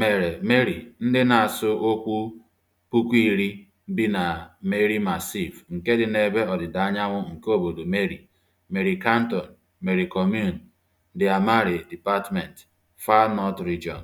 mere Mary ndị na-asụ okwu puku iri bi na Merrimachief, nke dị n'ebe ọdịda anyanwụ nke obodo Mary, Mary Canton, Mary Commune, Dairy Amari Department, Far North Region.